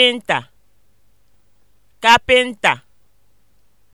kapịnta kapịnta